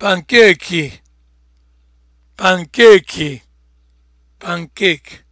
pankeki pankeki pancake